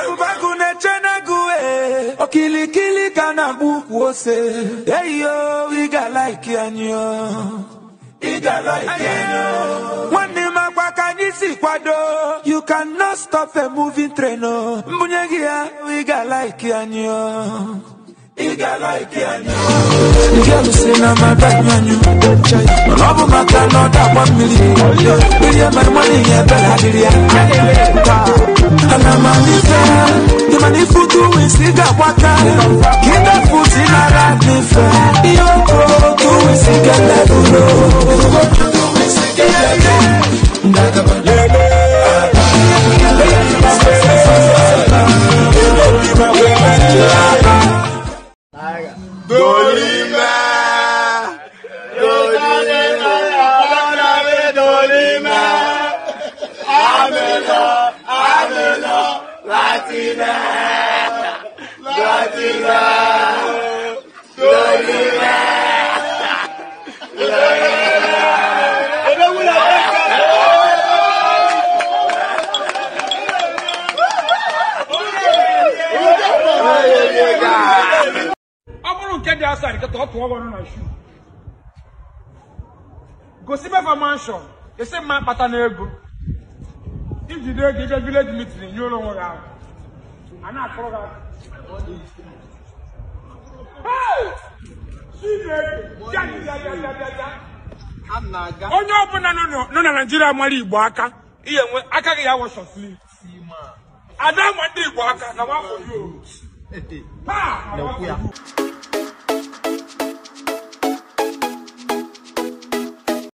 Agụbagụ na-eche na-agụ ee okilikili ka na-agba ukwu ose eyo ị ga-alaiki anyị ị ga-alaiki anyị nwanne m agba ka anyị si kwado you cannot stop a moving train oh. mbunye gị ya ị ga-alaiki anyị i one million. Million my money, yeah, better than yeah. And I'm on the fair. The money for two is doing cigar water. Get that food in a rat me fair. Yo, doing cigar level. dị asa nkịta ọ tụọ ọrụ na shu gosi mefa manshọn esi mma kpata na ego ijide ego ije vileji mitin nyere onwe gị ahụ a na-akọrọ gị aka onye ọbụla nọ na naijiria mara igbo aka ihe nwe aka gị ya wọsọsiri ada ma ndị igbo aka na nwafọ